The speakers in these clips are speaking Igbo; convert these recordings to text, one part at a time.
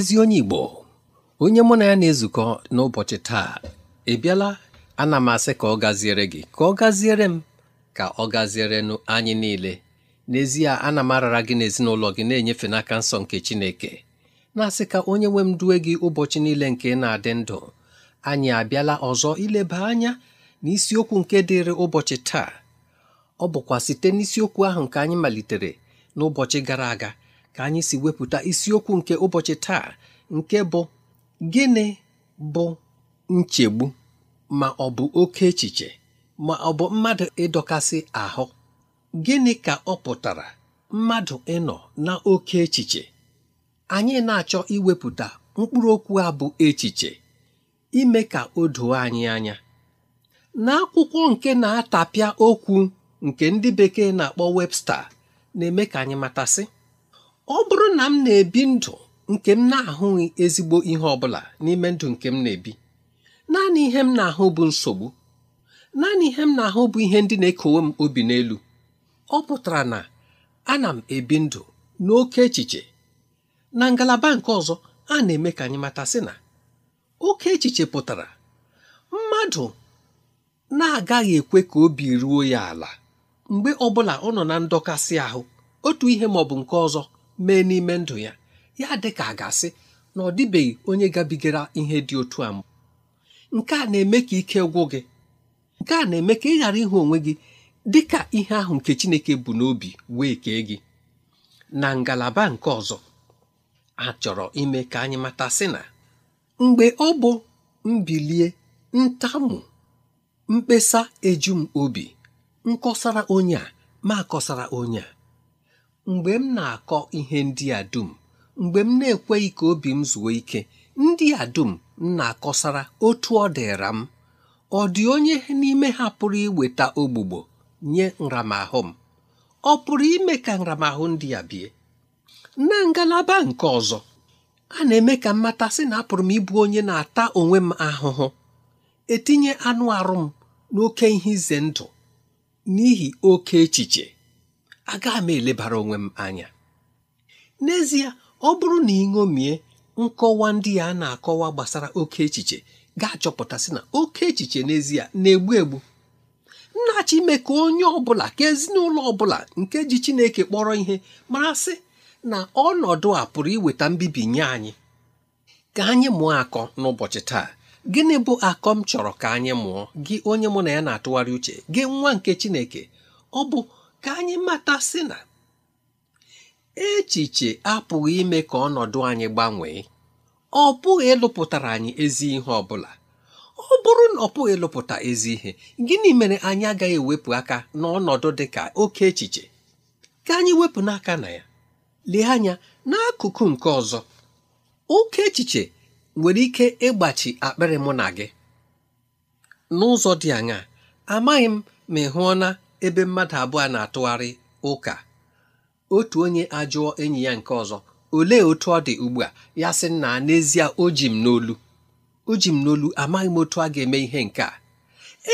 ezi onye Igbo onye mụ na ya na-ezukọ n'ụbọchị taa ebiala ana m asị ka ọ gaziere gị ka ọ gaziere m ka ọ nụ anyị niile n'ezie ana m arara gị n'ezinụlọ gị na-enyefe n'aka nsọ nke Chineke na-asị ka onye nwe m due gị ụbọchị niile nke na-adị ndụ anyị abịala ọzọ ileba anya n'isiokwu nke dịrị ụbọchị taa ọ bụkwa site n'isiokwu ahụ nke anyị malitere n'ụbọchị gara aga ka anyị si wepụta isiokwu nke ụbọchị taa nke bụ gịnị bụ nchegbu ma ọ bụ oke echiche ma ọ bụ mmadụ ịdọkasị ahụ gịnị ka ọ pụtara mmadụ ịnọ na oke echiche anyị na-achọ iwepụta mkpụrụ okwu a bụ echiche ime ka o doo anyị anya n'akwụkwọ nke na-atapịa okwu nke ndị bekee na-akpọ Webster na-eme ka anyị matasị ọ bụrụ na m na-ebi ndụ nke m na-ahụghị ezigbo ihe ọ bụla n'ime ndụ nke m na-ebi naanị ihe m na-ahụ bụ nsogbu naanị ihe m na-ahụ bụ ihe ndị na-ekowe m obi n'elu ọ pụtara na ana m ebi ndụ n'oke echiche na ngalaba nke ọzọ a na-eme ka anyị mata sị na oke echiche pụtara mmadụ na-agaghị ekwe ka obi ruo ya ala mgbe ọbụla ọ nọ na ndọkasị ahụ otu ihe ma ọ bụ nke ọzọ mee n'ime ndụ ya ya dị ka a ga-asị na ọ dịbeghị onye gabigara ihe dị otu a mbụ nke a na-eme ka ike gwụ gị nke a na-eme ka ị ghara ịhụ onwe gị dị ka ihe ahụ nke Chineke bụ n'obi wee kee gị na ngalaba nke ọzọ a chọrọ ime ka anyị mata sị na mgbe ọ bụ mbilie ntamu mkpesa eju m obi nkọsara onye a ma akọsara onye a mgbe m na-akọ ihe ndị a dum mgbe m na-ekweghị ka obi m zuo ike ndị a dum m na-akọsara otu ọ dịra m ọ dị onye n'ime ha pụrụ iweta ogbugbo nye nramahụ m ọ pụrụ ime ka nramahụ ndị a bie na ngalaba nke ọzọ a na-eme ka mmata sị na apụrụ m ịbụ onye na-ata onwe m ahụhụ etinye anụ arụ m n'oke ihe ize ndụ n'ihi oke echiche aga m elebara onwe m anya n'ezie ọ bụrụ na ị ṅomie nkọwa ndị a na-akọwa gbasara oke echiche ga-achọpụtasị na oke echiche n'ezie na-egbu egbu nnachi ime ka onye ọbụla ka ezinụlọ ọbụla nke ji Chineke kpọrọ ihe marasị na ọnọdụ a pụrụ iweta mbibi nye anyị ka anyị mụọ akọ n'ụbọchị taa gịnị bụ akọ m chọrọ ka anyị mụọ gị onye mụ na ya na-atụgharị uche gị nwa nke Chineke ọ bụ ka anyị mata si na echiche apụghị ime ka ọnọdụ anyị gbanwee ọ bụghị ịlụpụtara anyị ezi ihe ọ bụla ọ bụrụ na ọ pụghị ịlụpụta ezi ihe gịnị mere anyị agaghị ewepụ aka n'ọnọdụ dị ka oke echiche ka anyị wepụ n'aka na ya lee anya n'akụkụ nke ọzọ oke echiche nwere ike ịgbachi akpịrị mụ na gị n'ụzọ dị anya, amaghị m ma ị hụọna ebe mmadụ abụọ na-atụgharị ụka otu onye ajụọ enyi ya nke ọzọ olee otu ọ dị ugbu a ya sị na n'ezie o ji m n'olu o ji m n'olu amaghị m otu a ga-eme ihe nke a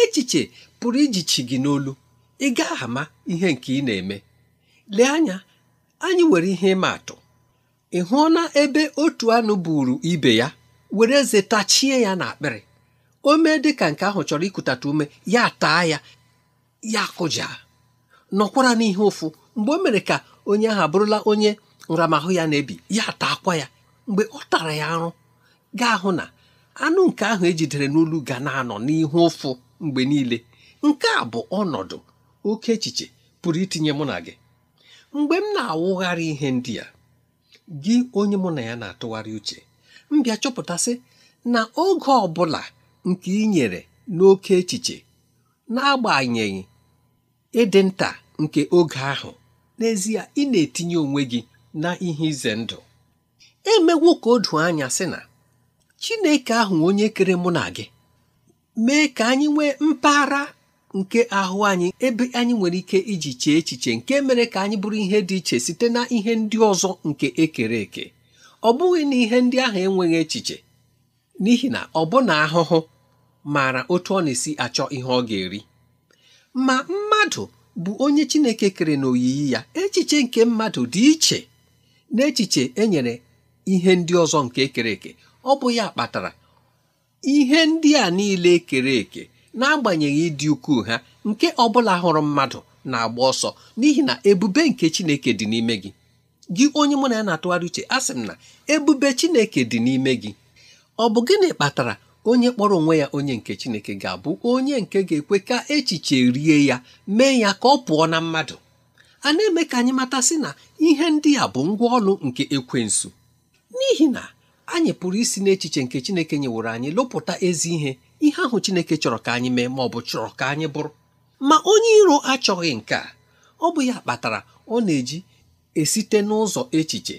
echiche pụrụ ijichi gị n'olu ị gaghị ama ihe nke ị na-eme lee anya anyị nwere ihe ịma atụ ị hụọna ebe otu anụ buru ibe ya were eze tachie ya n'akpịrị o mee dị ka nke ahụ chọrọ ikutatụ ume ya taa ya ya kụja nọkwara n'ihe ụfụ mgbe o mere ka onye ahụ abụrụla onye nramahụ ya na-ebi ya ata akwa ya mgbe ọ tara ya arụ gaa hụ na anụ nke ahụ ejidere n'olu ga na-anọ n'ihu ụfụ mgbe niile nke a bụ ọnọdụ oke echiche pụrụ itinye mụ na gị mgbe m na-awụgharị ihe ndị a gị onye mụ na ya na-atụgharị uche m bịa chọpụtasị na oge ọ bụla nke ị nyere n'oke echiche n'agbanyeghị ịdị nta nke oge ahụ n'ezie ị na-etinye onwe gị na ihe ize ndụ emewo ka o doo anya sị na Chineke ahụ onye kere mụ na gị mee ka anyị nwee mpaghara nke ahụ anyị ebe anyị nwere ike iji chee echiche nke mere ka anyị bụrụ ihe dị iche site na ihe ndị ọzọ nke ekere eke ọ bụghị na ihe ndị ahụ enweghị echiche n'ihi na ọbụna ahụhụ maara otu ọ na-esi achọ ihe ọ ga-eri ma mmadụ bụ onye Chineke kere n'oyiyi ya echiche nke mmadụ dị iche n'echiche enyere ihe ndị ọzọ nke ekere eke ọ bụ ya kpatara ihe ndị a niile ekere eke n'agbanyeghị ịdị ukwuu ha nke ọ bụla hụrụ mmadụ na-agba ọsọ n'ihi na ebube nke Chineke dị n'ime gị gị onye mụ na ya na-atụgharị uche a sị m na ebube Chineke dị n'ime gị ọ bụ gịnị kpatara onye kpọrọ onwe ya onye nke Chineke ga-abụ onye nke ga-ekwe ka echiche rie ya mee ya ka ọ pụọ na mmadụ a na-eme ka anyị mata sị na ihe ndị a bụ ngwa ọlụ nke ekwensu n'ihi na anyị pụrụ isi n'echiche nke Chineke nyeworo anyị lụpụta ezi ihe ihe ahụ Chineke chọrọ ka anyị mee ma ọ bụ chọrọ ka anyị bụrụ ma onye iro achọghị nke a ọ bụ ya kpatara ọ na-eji esite n'ụzọ echiche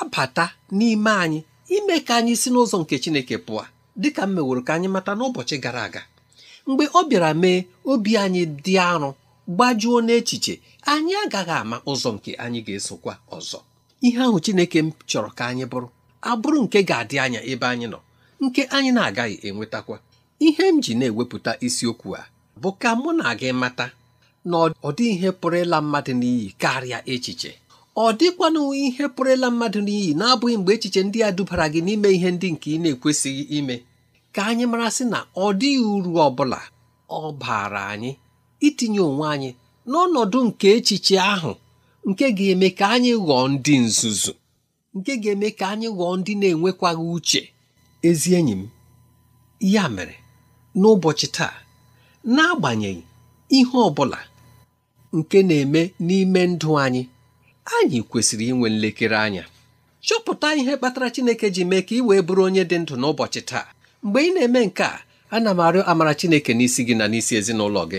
abata n'ime anyị ime ka anyị si n'ụzọ nke Chineke pụọ dịka m meworo ka anyị mata n'ụbọchị gara aga mgbe ọ bịara mee obi anyị dị arụ gbajuo n'echiche anyị agaghị ama ụzọ nke anyị ga-esokwa ọzọ ihe ahụ Chineke m chọrọ ka anyị bụrụ abụrụ nke ga-adị anya ebe anyị nọ nke anyị na-agaghị enwetakwa ihe m ji na-ewepụta isiokwu a bụ ka mụ na gị mata na ọ dị ihe pụrụ ịla mmadụ n'iyi karịa echiche ọ dịkwanụ ihe pụrụla mmadụ n'iyi na-abụghị mgbe echiche ndị a dubara gị n'ime ihe ndị nke ị na-ekwesịghị ime ka anyị mara sị na ọ dịghị uru ọ bụla ọ baara anyị itinye onwe anyị n'ọnọdụ nke echiche ahụ nke ga-eme ka anyị ghọọ ndị nzuzu nke ga-eme ka anyị ghọọ ndị na-enwekwaghị uche ezi enyi m ya mere n'ụbọchị taa n'agbanyeghị ihe ọ bụla nke na-eme n'ime ndụ anyị anyị kwesịrị inwe nlekere anya chọpụta ihe kpatara Chineke ji mee ka ị wee bụrụ onye dị ndụ n'ụbọchị taa mgbe ị na-eme nke a ana m arịọ amara Chineke n'isi gị na n'isi ezinụlọ gị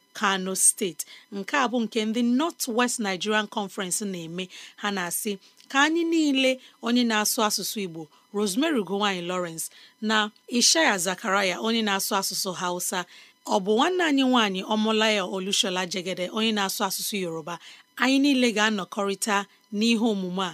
kano steeti nke a bụ nke ndị north west nigerian conference na-eme ha na-asị ka anyị niile onye na-asụ asụsụ igbo rosemary gowany lawrence na ishaya zakaraya onye na-asụ asụsụ hausa ọ bụ nwanne anyị nwanyị ọmụlaya olushola jegede onye na-asụ asụsụ yoruba anyị niile ga-anọkọrịta n'ihe omume a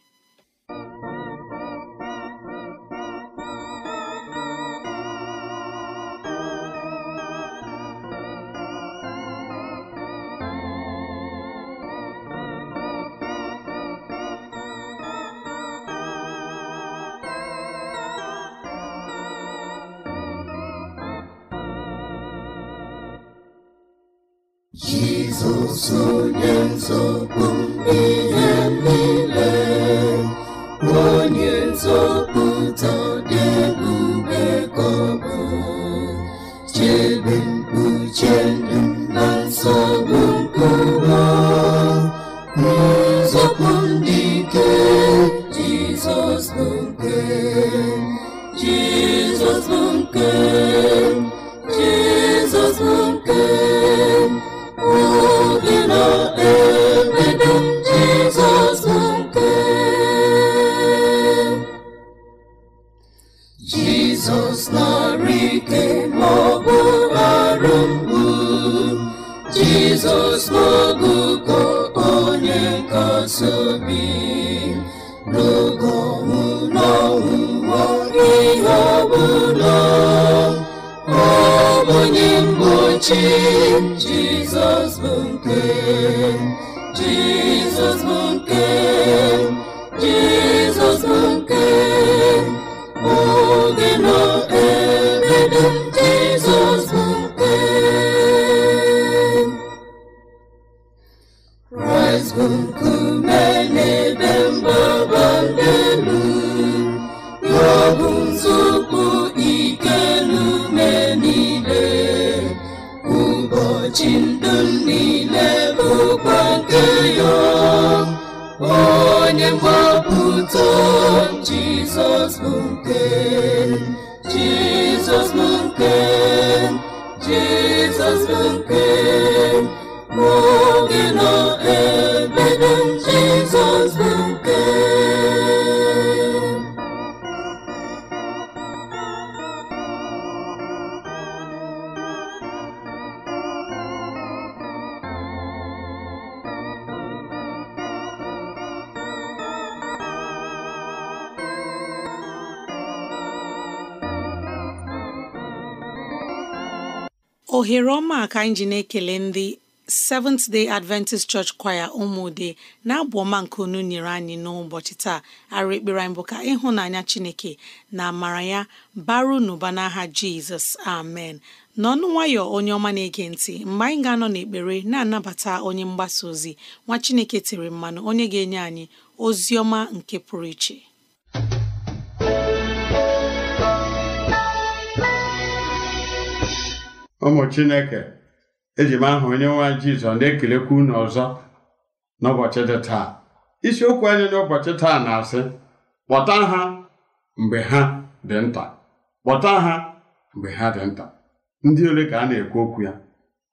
Jésù sonye nsogbu jizọs ma ọ bụ arụ mgbu jizọs n'ogugo onye nkasiobi n'oge ọnwụ n'ọnwụnwa ihe ọbụla onye mgbochi jizọs bụ nke jizọs bụ onye mgbapụta jizọs bụ nke jizọs bụ nke jizọs bụ nke oge nọ ebe jizọs bụ nke ohere ọma ka anyị ji na-ekele ndị Seventh Day Adventist Church Choir ụmụde na-abụ ọma nke unu nyere anyị n'ụbọchị taa arụ ekpere anyị bụ ka ịhụnanya Chineke na amara ya baru n'ụba n'aha Jizọs amen n'ọnụ nwayọ onye ọma na-ege ntị mgbe anyị ga-anọ n'ekpere na-anabata onye mgbasa ozi nwa Chineke tiri mmanụ onye ga-enye anyị ozi ọma nke pụrụ iche ụmụ chineke eji m aha onye nwa Jizọs jizọ na-ekelekwa unu ọzọ n'ụbọchị dị taa isiokwu anyị n'ụbọchị taa na-asị kpọta ha mgbe ha dị nta kpọta ha mgbe ha dị nta ndị ole ka a na-ekwu okwu ya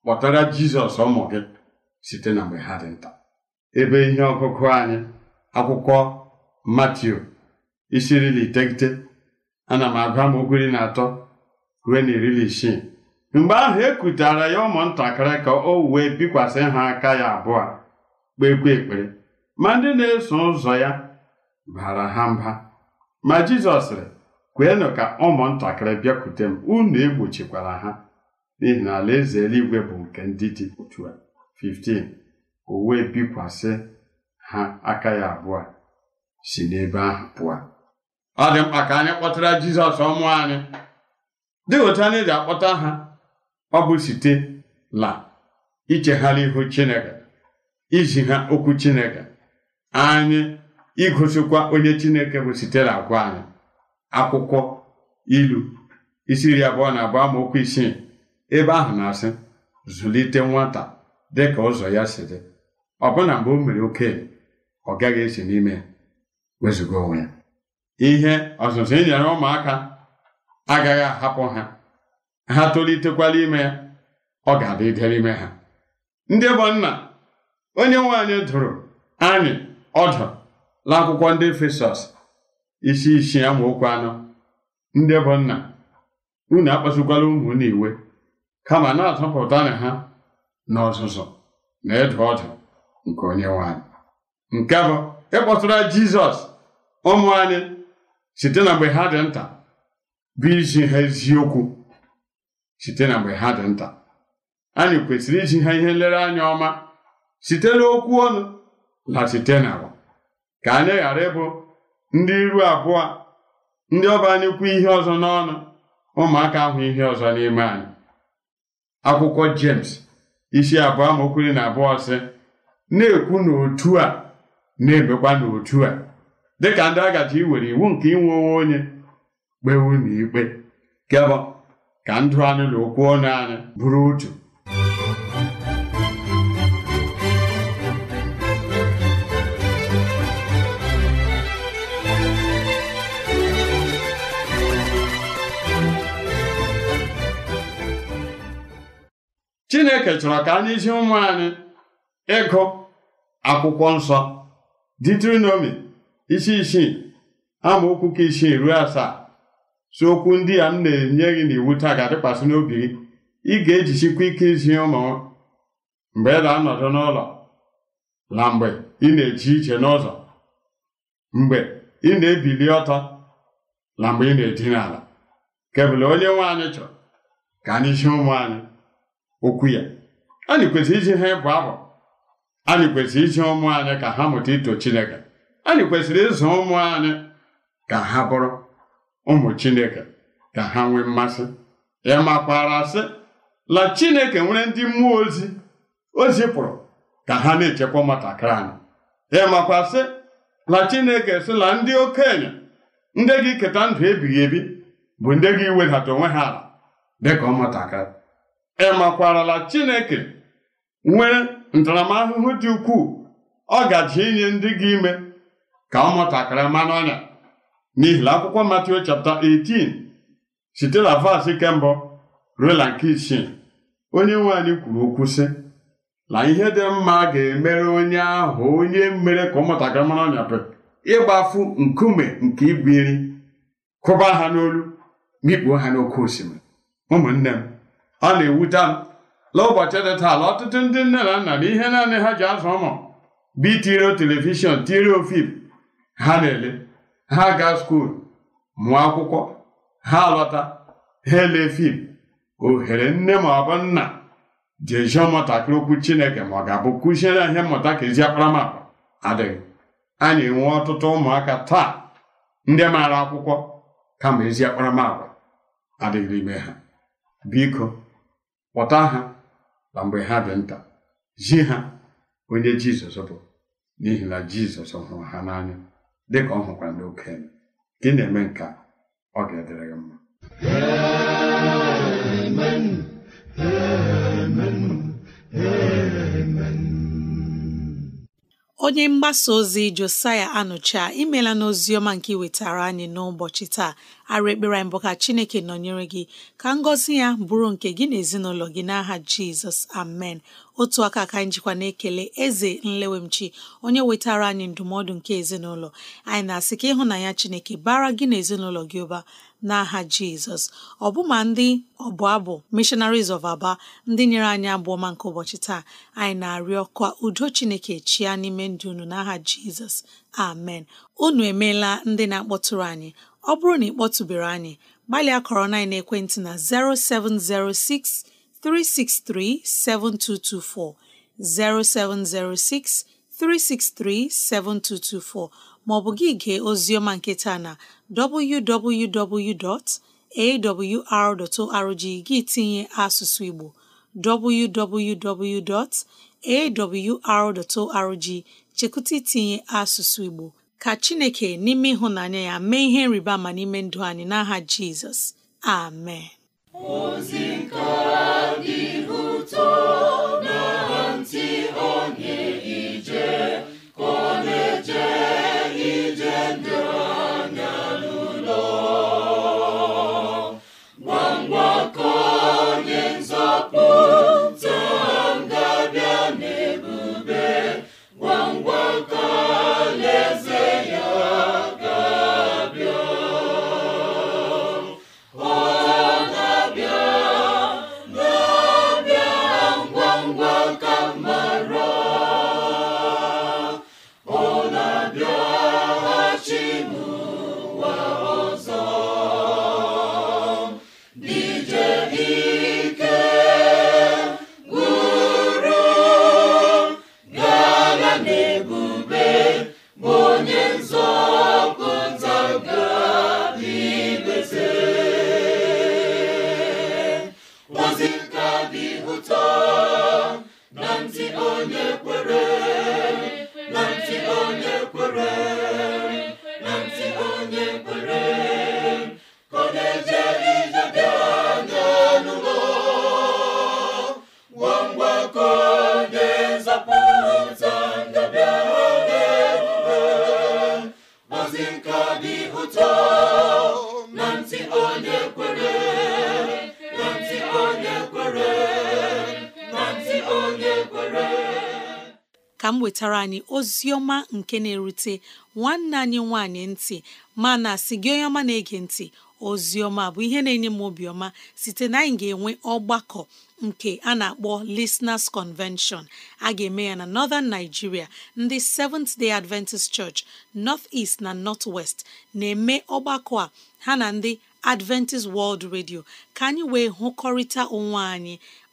kpọtara jizọs ụmụ gị site na mgbe ha dị nta ebe ihe ọgụgụ anyị akwụkwọ matiu isi iri na iteghete ana m agụ m iri na atọ ruo na iri na isii mgbe ahụ e ya ụmụntakịrị ka o wee bikwasị ha aka ya abụọ kpekwe ekpere ma ndị na-eso ụzọ ya bara ha mba ma Jizọs sịrị kweenụ ka ụmụntakịrị bịakwute m unu egbochikwara ha n'ihi na alaeze eluigwe bụ nke ndị dị otu a 15 o wee bikwasị ha aka ya abụọ si n'ebe ahụ pụọ ọ dị mkpa ka anyị kpọtara Jizọs ọmụ anyị dị otu anyị ji akpọta ha ọ bụ site la ichegharị ihu Chineke izi ha okwu Chineke anyị igosikwa onye Chineke bụ site na agwa anyị akwụkwọ ilu isi iri abụọ na abụọ amaokwu isii ebe ahụ na-asị zụlite nwata dị ka ụzọ ya si dị ọbụna mgbe o mere okenye ọ gaghị esi n'ime ya onwe ya ihe ọzụzụ e nyere ụmụaka agaghị ahapụ ha ha tolitekwala ime ya ọ ga-adị dịrị ime ha ndị bụ nna onye nwe dụrụ anyị ọdụ n'akwụkwọ ndị Efesọs isi isi amaokwu anọ ndị bụ nna unu akpasukwala ụmụ iwe kama na-atọpụta na ha na ọzụzụ na ịdụ ọdụ nke onye nwe nke bụ ịkpọtụra Jizọs ụmụ anyị site na mgbe ha dị nta bụ izi ha eziokwu site na mgbe ha dị nta anyị kwesịrị iji ha ihe nlereanya ọma site n'okwu ọnụ na site n'agwa ka anyị ghara ịbụ ndị iru abụọ ndị ọba anyị ihe ọzọ n'ọnụ ụmụaka ahụ ihe ọzọ n'ime anyị akwụkwọ James isi abụọ amaokwu na abụọ sị na-ekwu n'otu a na-emekwa n'otu a dịka ndị agaji iwere iwu nke inwe onwe onye kpee unu ikpe kebọ ka ndụ anyị na okwu ọnụ anyị bụrụ otu chineke chọrọ ka anyị zi ụmụ anyị ịgụ akwụkwọ nsọ ditrinomi isi isii amaokwu ka isii ruo asaa si okwu ndị a m na-enye gị n'iwu taa ga-adịkwasị n'obi gị ị ga-ejichikwa ike izi ụmụ mgbe ị na-anọdụ n'ụlọ na mgbe ị na eji ije n'ụzọ mgbe ị na-ebili ọtọ na mgbe ị na-edina ala kebụla onye nwe anyị chọrọ ka anyị zie ụmụ anyị okwu ya anyị kwesịrị iji ha ịbụ abụ anyị kwesịrị iji ụmụ anyị ka ha mụta ito Chineke anyị kwesịrị ịzụ ụmụ anyị ka ha bụrụ ụmụ chineke ka ha nwee mmasị ya makwara sị la chineke nwere ndị mmụọ ozi ozi pụrụ ka ha na-echekwa ụmụntakịrị anyị ya makwa sị la chineke sị la ndị okenye ndị gị keta ndụ ebighị ebi bụ ndị gị wedata onwe ha ala dịka ụmụntakịrị ịmakwarala chineke nwere ntaramahụhụ dị ukwuu ọ gaji inye ndị gị ime ka ụmụntakịrị mmanụ ọnya n'ihi na akwụkwọ Matiu chapta 18 site na vaasị kembụ ruo na nke isii onye nwe anyị kwuru okwu sị na ihe dị mma ga-emere onye ahụ onye mere ka ụmụntakịrị mara ọnyapụ ịgbafu nkume nke igwe iri kụba ha n'olu mikpuo ha n'oké osimiri ụmụnne m ọ na-ewute m na ụbọchị dị taa ọtụtụ ndị nne na nna na ihe naanị ha ji azụ ụmụ bụ itiri telivishọn tiri ofim ha na-ele ha gaa skuulu mụọ akwụkwọ ha lọta ha ele fim ohere nne ma ọ bụ nna jejụọ ụmụntakịrị okwu chineke ma ọ ga-abụ kụziere ihe mmụta ka ezi akparamagwa adịghị a na ọtụtụ ụmụaka taa ndị maara akwụkwọ kama ezi akparamagwa adịghị ime ha biko kpọta ha na mgbe ha dị nta zi ha onye jizọs bụ n'ihi na jizọs hụrụ ha n'anya dịka ọ hụkwara n'oke gị na-eme nke ọ ga-edere gị mma amen onye mgbasa ozi josaya anụcha imela n'oziọma nke iwetara anyị n'ụbọchị taa arụ ekpere anyị bụ ka chineke nọnyere gị ka ngọzi ya bụrụ nke gị na ezinụlọ gị n'aha jizọs amen otu aka ka anyị jikwa na-ekele eze nlewemchi onye wetara anyị ndụmọdụ nke ezinụlọ anyị na-asị ka ịhụnanya chineke bara gị na ezinụlọ gị ụba n'aha jizọs ọbụma ndị ọbụ abụ missionaries of aba ndị nyere anyị abụọ ọma nke ụbọchị taa anyị na-arịọ ka udo chineke chia n'ime ndụ unu n'aha jizọs amen unu emeela ndị na-akpọtụrụ anyị ọ bụrụ na ị kpọtụbere anyị gbalịa kọrọ na ekwentị na 0706 363 7224 0706 363 7224 maọbụ gị gee ozioma nketa na www.awr.org gị tinye asụsụ Igbo www.awr.org chekwụta tinye asụsụ Igbo ka Chineke n'ime ịhụnanya ya mee ihe nriba ma n'ime ndụ anyị n'aha Jizọs amen ozi nke dị ụtọ nke na-erute nwanne anyị nwanyị ntị mana si gị onye ọma na-ege ntị ozi ọma bụ ihe na-enye m obiọma site na anyị ga-enwe ọgbakọ nke a na-akpọ Listeners Convention a ga-eme ya na Northern Nigeria ndị Seventh Day Adventist Church North East na North West na-eme ọgbakọ a ha na ndị Adventist World Radio ka anyị wee hụkọrịta onwe anyị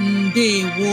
ndewo